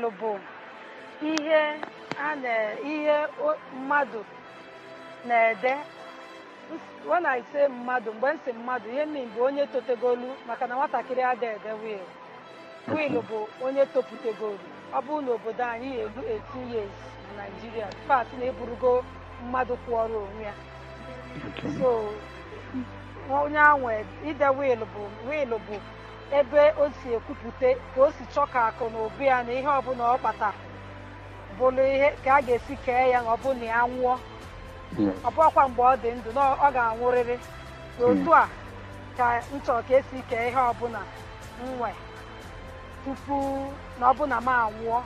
bọọlụ bụ ihe mmadụ na-ede when I mmadụ mgbe nsị mmadụ ihe m bụ onye totegolu maka na nwatakịrị ada ede wil wil bụ onye toputegolu ọ bụrụ na obodo anyị elu 18 e years na Naịjirịa pat na eburugo mmadụ kwụọrọ onwe ya so onye ahụ ide wil bụ wil bụ ebe o si ekwupụta ka o si chọọ ka akụ na obi ya na ihe ọbụla ọ kpata bụrụ ihe ka a ga-esi kee ya na na ya nwụọ ọbụ bụkwa mgbe ọ dị ndụ na ọ ga-anwụrịrị hmm. otu a ka m chọrọ ka esi kee ihe ọbụla nwee tupu na ọbụla m anwụọ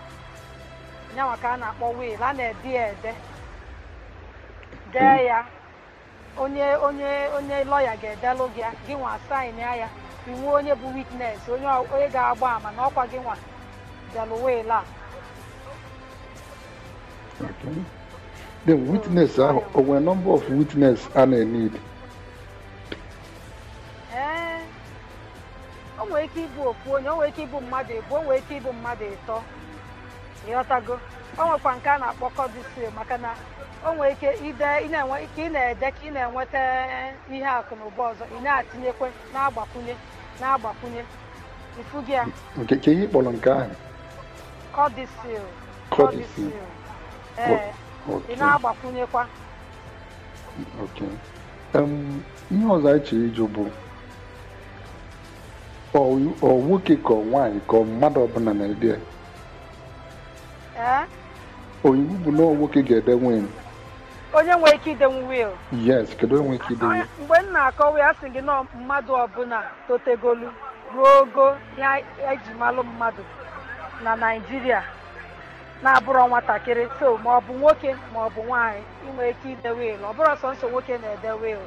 ya maka a na-akpọ wiil a na-ede ya ede dee ya onye onye onye lọya ga-edelụ gị gị nwa saịn ya inwe onye bụ witnes onye ga-agba ama na ọkwa gị nwa bịalụwela the witness ahụ o nwere number of witness a na-enid ee o nwere ike ịbụ ofu onye o nwere ike ịbụ mmadụ ebu o nwere ike ịbụ mmadụ ịtọ ịghọtago o nwekwa nke a na-akpọ kọdisi maka na o nwere ike ide ị na-ede ka ị na-enweta ihe akụ na ụba ọzọ ị na-atinyekwe na-agbakwunye na-agbakwunye ifu gị a nke ihe kpọrọ nke ahụ kọdisil kọdisil ee ị na-agbakwunyekwa ihe ọzọ anyị chọrọ ịjụ bụ ọ nwoke ka ọ nwaanyị ka ọ mmadụ ọbụla na-ede oyiwu bụ na nwoke ga-ede nwunye onye nwere ike idenwu wil yes kedu onye ike idenwu mgbe m na-akọwa ya sị gị nọ mmadụ ọbụla totegolu ruo ogo ya eji malụ mmadụ na naijiria na-abụrọ nwatakịrị so ma ọ bụ nwoke ma ọ bụ ike ide wil ọ bụrọ sọnsọ nwoke na-ede wil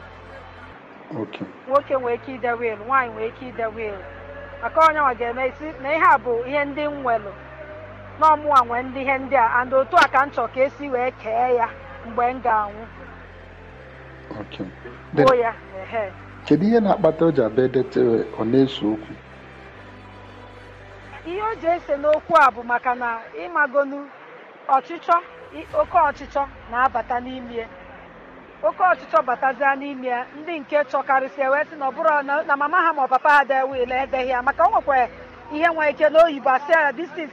nwoke nwere ike ide wil nwaanyị nwere ike ide wil maka onye nwa ga-eme isi na ihe a bụ ihe ndị m nwelụ n'ọmụwa nwee ndị ihe ndị a and otu a ka m chọ ka esi wee kee ya mgbe m ga-anwụ gbuo ya kedu ihe na-akpata o ji abịa edetere ọ na-eso okwu ihe o ji ese n'okwu a bụ maka na ịmagonu ọchịchọ oke ọchịchọ na-abata n'ime oke ọchịchọ batazia n'ime ya ndị nke chọkarịsịa wee sị na ọ bụrụ na mama ha ma ọ papa ha de wiil edeghị ya maka o nwekwara ihe nwere ike n'oyibo asịa ya this thing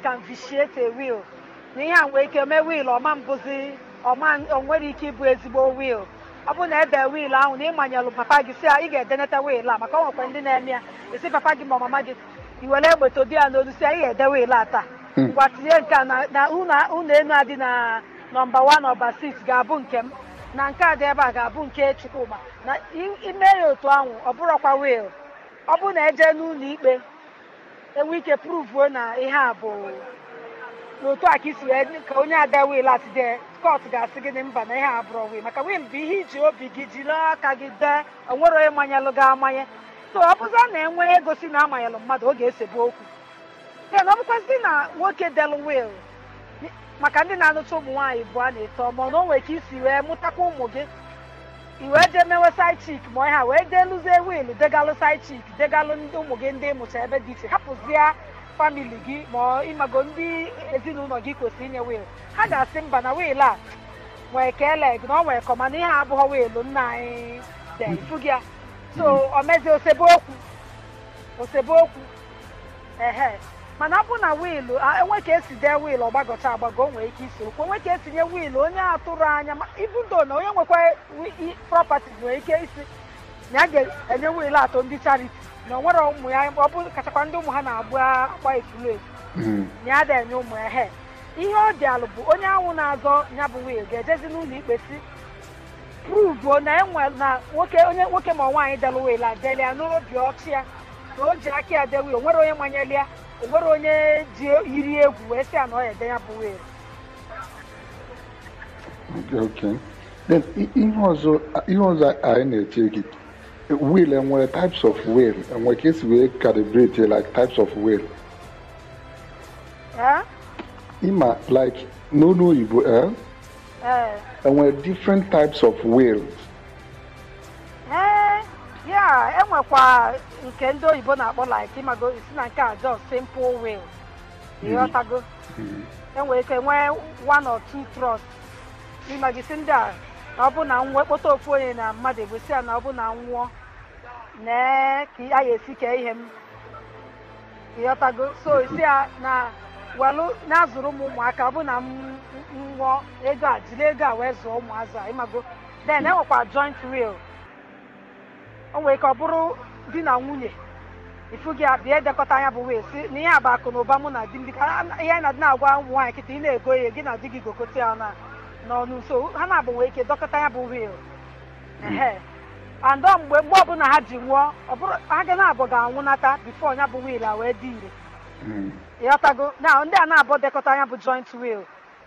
na ihe a nwere ike mee wil ọma mbụzi ọ nwere ike ịbụ ezigbo wiil ọ bụrụ na ebe wiil ahụ na ịmanyelụ papa gị si ị ga-edeneta wiil a maka ọ nwekwa ndị na-eme ya esi papa gị ma mama gị i were egbete di ya n'olu si a ị ga-ede wiil a taa ngwa hmm. tinye nke a na ụlọ enu adị na nọmba wan nọmba siks ga-abụ nke m na nke a dị ebe a ga-abụ nke chukwuma na ime ya otu ahụ ọ wiil ọ bụrụ na eje n'ụlọ ikpe enwe ike pruvuo na ihe a bụ na otu a ka isi wee ka onye ada wil asị dị skọt ga-asị gị mba na ihe abụrọ wil maka wil bụ ihe iji obi gị jiri aka gị dee onwere onye manyalụ gị amanye so ọ bụzi na-enwe egosi na amanyalụ mmadụ oge bụ okwu then ọ bụkwazị na nwoke del wil maka ndị na-anụcha ụmụ nwaanyị bụ a na-eto ma na o nwere ka isi wee mụtakwa ụmụ gị iwe jee mewe said chik ma ha wee dee lụzie wil degalụ said chik degalụ ụmụ gị ndị mụcha ebe dị iche hapụzie famili gị ma ịmago ndị ezinụlọ gị kwesịrị inye wil ha ga-asị mba na wil a nwee keleg na ọ nwee kọ mana ihe abụghọ wiilụ nna anyị de ifu so o mezi osebe okwu okwu ehe mana abụ na wiilụ enwe ka esi dee wiil ọgbagọcha agbagọ o nwee ike isi okwu enwe ka etinye wiilụ onye atụrụ anya ibudo na onye nwekwa prọpati nwere ike isi na a ga-enye wiil atọ ndị chariti na onwere ụmụ ya ọ bụ kachakwa ndị ụmụ ha na agbu akpa etulu etu hmm. na ya da enye ụmụ ya he ihe ọ dị alụ bụ onye anwụ na-azọ ya bụ nwunye ga-ejezi n'ụlọ ikpe si pruvuo na enwe na nwoke onye nwoke ma nwaanyị dela wil adeli ya n'ụlọ ọchị ya na o ji aka ya dewi onwere onye manyeli ya onwere onye ji yiri egwu wee sị ya na ọ ya ede ya bụ wil ihe ọzọ anyị na-eche gị wheel enwere types of wheel enwere ka esi wee calibrate like types of wheel ịma like n'olu oyibo enwere eh? eh. different types of wheel eh, ya enwekwa nke ndị oyibo na-akpọ like ịmago isi na nke a just simple wheel ịghọtago enwere ike nwee one or two thrust ịmagisi ndị a ọ bụ na nwekpọta ofu onye na mmadụ ebusi ya na ọ bụ na nwụọ nee ka a ya esi kee ihe m ịghọtago so isi ya na welụ na-azụrụ m ụmụaka ọ bụ na m nwụọ ego a jiri ego a wee zụọ ụmụazụ a ịmago den enwekwa joint will o nwere ka ọ bụrụ di na nwunye ifu gị abịa edekọta anya bụ wee si na ihe a bụ akụ na ụba mụ na di m dịka ihe na-adị na-agwa ụmụ nwaanyị kịta ị na-ego ihe gị na di gị gokote ya na n'ọnụ nso ha na-abụ wee ike dọkọta ya bụ wil andọ mgbe mgbe ọbụla ha ji nwụọ ha ga na-abụ ga-anwụnata bifo ya bụ wil a wee dị ire hmm. ịghọtago na ndị a na-abụ dekọta ya bụ joint wil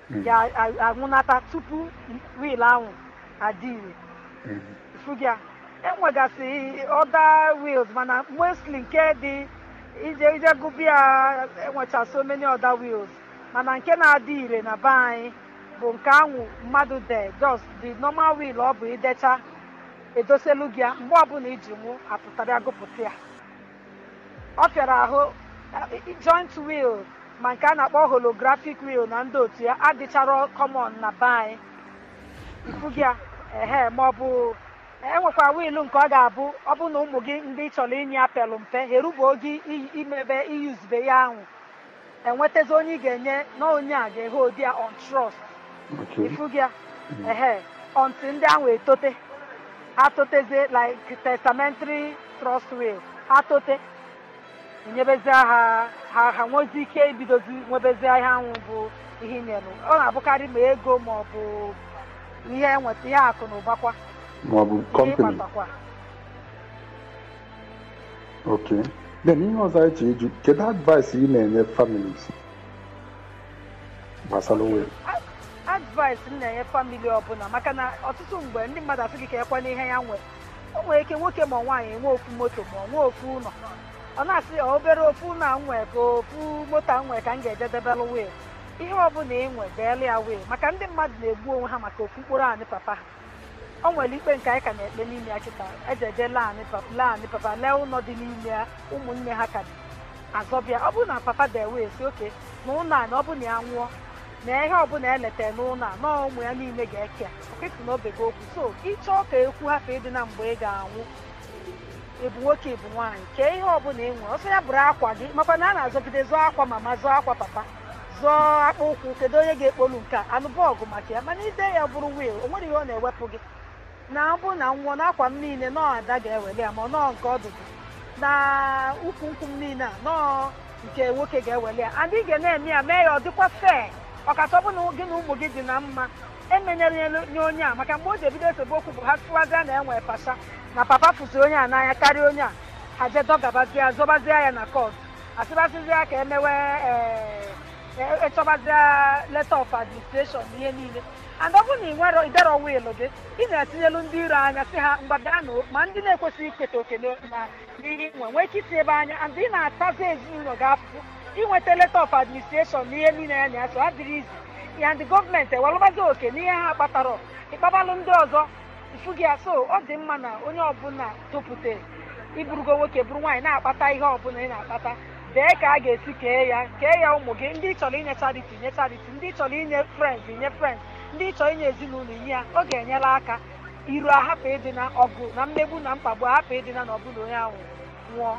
hmm. ga-anwụnata tupu wil ahụ adị ire hmm. fugya enwegasị ọda wils mana mostly nke dị ije ije gụbịa enwecha so many ọda wils mana nke na-adị ire na be anyị bụ nke anwụ mmadụ de just the normal will ọ bụ idecha edoselu gị ya mgbe ọbụla iji nwụ apụtara gụpụta ya ọ fịara ahụ eh, joint will ma nke a na-akpọ holographic will na ndị otu ya adịchara kọmon na be anyị ifugi ya ehe ma ọ bụ enwekwa wiil nke ọ ga-abụ ọ bụ na ụmụ gị ndị chọrọ inye apelụ mpe herubuo gị imebe iyuzube ya ahụ enwetazi onye ị ga-enye na onye a ga-ehe odi ya on trust ifuga ehe until ndị ahụ etote ha like testamentary trust atote ha tote nyebezie ha ha ha nwezie ike ibidozi nwebezie ihe anwụ bụ ihe nyere ọ na-abụkarị ma ego ma ọ bụ ihe enweta ihe akụ na ụbakwa ma ọ ok then ihe ọzọ anyị ji eju kedu advice ị na-enye families gbasara onwe advice m na-enye famili ọbụla maka na ọtụtụ mgbe ndị mmadụ asị gị ka ekwana ihe ya nwee o nwere ike nwoke ma nwaanyị enwe ofu moto ma nwee ofu ụlọ ọ na-asị obere ofu na nwee ka ofu moto nwee ka m ga-eje debelụ wee ihe ọbụla ị nwe deelụ ya wee maka ndị mmadụ na-egbu onwe ha maka ofu mkpụrụ anyị papa ha o nwere ikpe nke anyị ka na-ekpe n'ime ya kịta ejeje lee anyị papa lee ụlọ dị n'ime ya ụmụnne ha ka azọbịa ọ bụrụ na papa dee wee si oke na ụlọ anyị ọ bụrụ na ya nwụọ na ihe ọbụla eleta n'ụlọ a nọọ ụmụ ya niile ga-eke okesi na gị okwu so ịchọọ ka ekwu hapụ ịdị na mgbe ị ga-anwụ ịbụ nwoke ịbụ nwaanyị kee ihe ọbụla ị nwere ọsọ ya bụrụ akwa gị makwa na a na-azọgide zụọ akwa mama zụọ akwa papa zụọ akpa ụkwụ kedu onye ga-ekpolu nke a anụ bọọgụ maka ya mana ide ya bụrụ wiil o nwere ihe ọ na-ewepụ gị na abụ na nwụọ na akwa m niile nọọ ada ga-eweli ya ma nọọ nke ọ na ụkwụ nkwụ m niile a nọọ nke nwoke ga-eweli ya adị ga na-eme ya mee ya ọ dịkwa fee ọkasọ bụ na gị na ụmụ gị dị na mma emenyere nye onye a maka mgbe o ji ebido esemokwu bụ ha tụwazie na enwe pasa na papa fụzi onye a n'anya karịa onye a ha jee dọgabazie zọbazie ya na kọt asịbazizie ka emewe ịchọbazie eh, eh, e leta of administration na ihe niile and ọ na ị nwere idere wiil gị ị na-etinyelu ndị iro anya si ha mgba ma ndị na-ekwesịghị iketa oke n'ihe nwe nwee ike itinye ebe anya and ị na-atazi ezinụlọ gị afụfụ inweta eh, eh, leta of administration n'ihe niile ya na ya so adịrị izi ya ndị gọọmenti ewalụbazi oke n'ihe ha kpatara ịkpabalụ ndị ọzọ ifu gị so ọ dị mma na onye ọbụla tụpụta iburugo nwoke bụrụ nwaanyị na-akpata ihe ọbụla ị na-akpata dee ka a ga-esi kee ya kee ya ụmụ gị ndị chọrọ inye chariti nye chariti ndị chọrọ inye frens inye frens ndị chọrọ inye ezinụlọ inye ya ọ ga-enyere aka iru ahapụ ịdị na ọgụ na mmegbu na mkpagbu ahapụ ịdị na na ọbụla onye ahụ nwụọ